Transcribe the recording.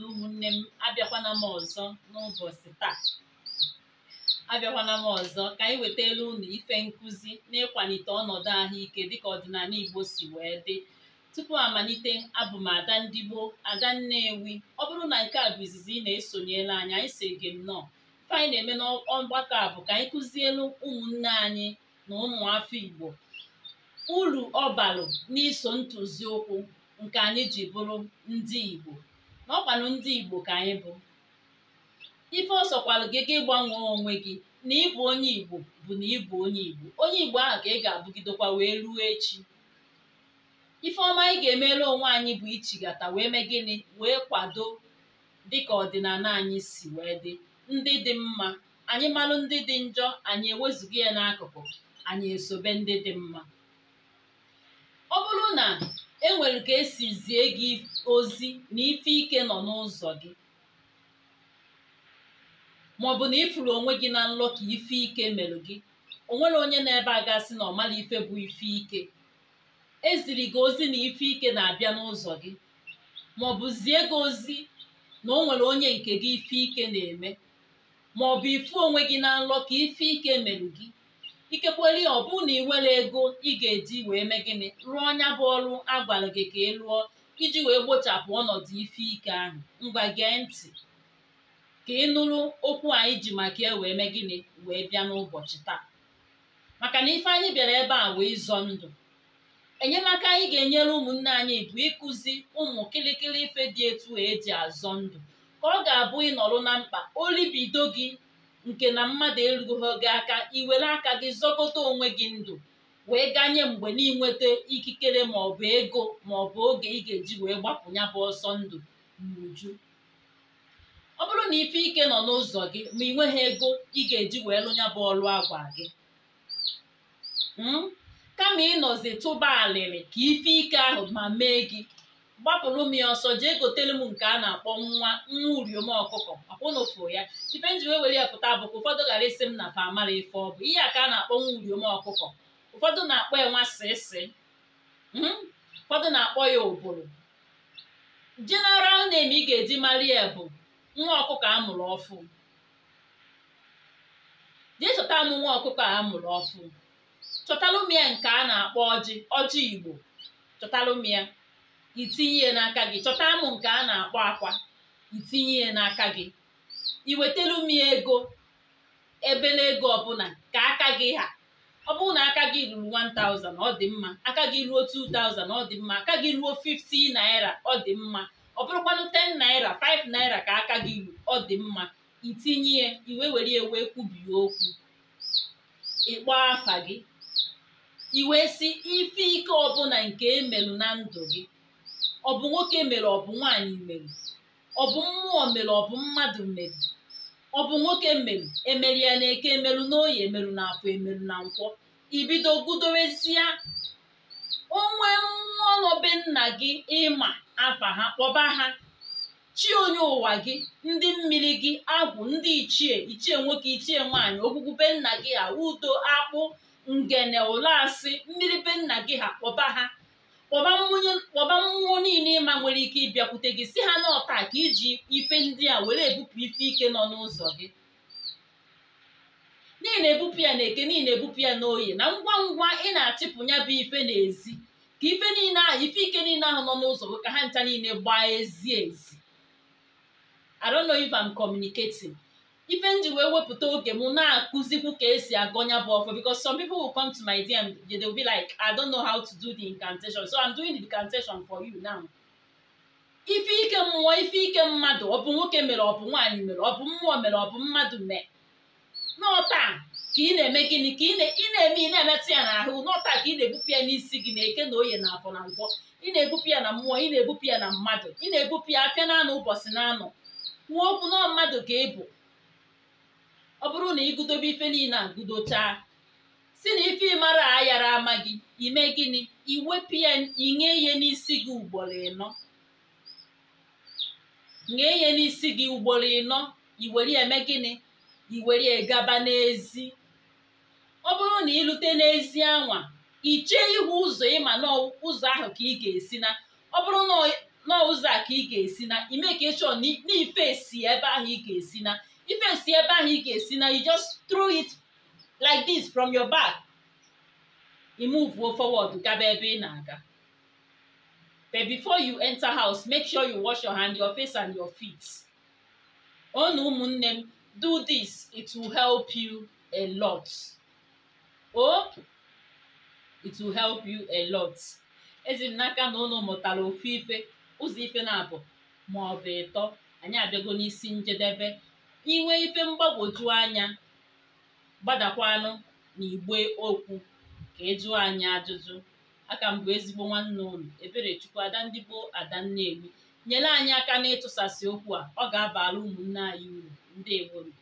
na ụmụnne m abịakwana m ọzọ n'ụbọchị taa abịakwana m ọzọ ka anyị wetara ụnụ ife nkụzi na ịkwalite ọnọdụ ahụike dịka ọdịnala Igbo si wee dị tupu amalite abụ m ada ndị gboo ada nnewi ọ bụrụ na nke a bụ izizi ị na-esonyela anyị anyị si gị nnọọ ife anyị na-eme n'ọgbakọ a bụ ka anyị kụzielu ụmụnne anyị na ụmụafọ Igbo uru ọ n'iso ntụzi ụkwụ nke anyị ji bụrụ ndị Igbo na ndị Igbo ka anyị bụ ife ọsọkwalụ gị gị gbanwee onwe gị na ịbụ onye Igbo bụ na ịbụ onye Igbo onye Igbo ahụ ka ị ga-abụgidekwa wee ruo echi ife ọma anyị ga-emere onwe anyị bụ ichigata wee mee gịnị wee kwado dịka ọdịnala anyị si wee dị ndị dị mma anyị malụ ndị dị njọ anyị ewezughi ya n'akụkụ anyị esobe ndị dị mma nwere ka esi zie gị ozi na ife ike nọ n'ụzọ gị bụ na ịfụrụ onwe gị na nlọ ka ife ike mere gị o nwere onye na-ebe a gasị na ọmala ife bụ ife ike eziri gị ozi na ife ike na-abịa n'ụzọ gị bụ zie gị ozi na o nwere onye nke gị ife ike na-eme bụ ifu onwe gị na nlọ ka ife ike mere gị ikekweli ọbụna ọ bụ na iwere ego ị ga-eji wee mee gịnị rụọ nya bụ ọrụ agwara gị ka ị lụọ iji wee gbochapụ ọnọdụ ife ike ahụ ngwa gee ntị ka ị nụrụ okwu anyị ji maka ya e wee mee gịnị wee bịa n'ụbọchị taa maka na ife anyị bịara ebe a wee zọọ ndụ enyemaka anyị ga-enyere ụmụnne anyị bụ ịkụzi ụmụ kịlịkịlị ife dị etu eji azọ ndụ ka ọ ga-abụ ịnọrọ na mkpa olibido gị nke na mmadụ erughị gị aka iwere aka gị zọkọta onwe gị ndụ wee ganye mgbe n'inweta ikikere maọbụ ego maọbụ oge ị ga-eji wee gbapụ ya ọsọ ndụ n'uju ọ bụrụ na ife ike nọ n'ụzọ gị ma ị nweghị ego ị ga-eji wee lụ ya ọrụ agwa gị hmm? kama ịnọzi tụba alịrị ka ife ike ahụ ma mee gị gbapụrụ m ya ọsọ jee gotelu m nke a na-akpọ nwa nwa uriom ọkụkọ akwụnụfụ ya ife nji wee were ya pụta ka ụfọdụ ghara isi m na famara amara ife ọ bụ ihe a ka a na-akpọ nwa uriom ọkụkọ ụfọdụ na-akpọ ya nwa sịsị hmm? ụfọdụ na-akpọ ya ụbụrụ jeneral name ị ga-eji mara ya bụ nwa ọkụkọ a mụrụ ọfụ jee chọta m nwa ọkụkọ a mụrụ ọfụ chọtalụ m ya nke a na-akpọ ọjị ọjị igbo chọtalụ m ya itinye n'aka gị chọta amụ nke a na-akpọ akwa itinye ya n'aka gị iwetelu m ego ebe n'ego ọbụla ka aka gị ha ọ bụrụ na aka gị ruru 1000 ọ dị mma aka gị ruo 2000 ọ dị mma aka gị ruo 50 naira ọ dị mma ọ bụrụkwanụ 10 naira 5 naira ka aka gị ruru ọ dị mma itinye ya iwe were ya wee kwubie okwu ịkpọ afa gị iwe si ife ike ọbụla nke emelụ na ndụ gị ọ bụ nwoke mere ọ bụ nwaanyị mere ọ bụ mmụọ mere ọ bụ mmadụ mere ọ bụ nwoke mere emeri ya na eke emeru n'oyi emeru na afọ emeru na nkwọ ibido gudowesia onwe nwa nna gị ịma afa ha kpọba ha chi onye ụwa gị ndị mmiri gị agwụ ndị ichie ichie nwoke ichie nwaanyị ogbugbu nna gị ha udo akpụ ngene ụlọ mmiri be nna gị ha kpọba ha kpọba mmụọ niile ịma nwere ike ịbịakwute gị si ha n'ọta ka iji ife ndị a were ebupụ ife ike nọ n'ụzọ gị niile ebupụ ya na-eke niile ebupụ ya n'oyi na ngwa ngwa ị na-achịpụ ya bụ ife n'ezi ka ife niile ahụ ife ike niile ahụ nọ n'ụzọ gị ka ha ncha niile gbaa ezi ezi I ife nji ji wee wepụta oge m na-akụzikwu ka esi agọnya bụ ọfọ because some people will come to my DM they will be like I don't know how to do the incantation so I'm doing the incantation for you now. ife ike mmụọ ife ike mmadụ ọ bụ nwoke mere ọ bụ nwaanyị mere ọ bụ mmụọ mere ọ bụ mmadụ mee n'ọta ka ị na-eme gịnị ka ị na-eme ị na-emetụ ya n'ahụ n'ọta ka ị na-ebupụ ya n'isi gị na-eke na oye na afọ na ngwọ ị na-ebupụ ya na mmụọ ị na-ebupụ ya na mmadụ ị na-ebupụ ya afịa na anụ ụbọchị na anụ kwuo okwu mmadụ ka ị ọ bụrụ na ịgụdobe ife niile a gụdochaa si na ife ịmara ayara ama gị ime gịnị iwepụ ya inye ihe n'isi gị ugboro ịnọ nye ihe n'isi gị ugboro ịnọ iwere eme gịnị iwere gaba n'ezi ọ bụrụ na ịlute n'ezi anwa ichee ihu ụzọ ịma n'ụzọ ahụ ka ị ga-esi na ọ bụrụ na ụzọ a ka ị ga-esi na ime ka na ife esi ebe ahụ ị ga-esi na ife si ebe ahụ ị ga-esi na you just throw it like this from your back imuvuo forward gaba ebe ị na-aga but before you enter house make sure you wash your hand your face and your feet onu ụmụnne m do this it will help you a lot Oh, it will help you a lot ezi m n'aka na unu mụtara ofu ife ụzọ ife na-abụ ma ọ bụ ịtọ anyị abịago n'isi njedebe inwe ife mgbagwoju anya gbadakwanụ na igbe okwu ka ịjụ e anyị ajụjụ aka mbụ ezigbo nwanne ụlọ Eberechukwu Adandị gboo Ada nyere anyị aka n'ịtụsasị okwu a ọ ga-abara ụmụnne anyị uru ndị eworo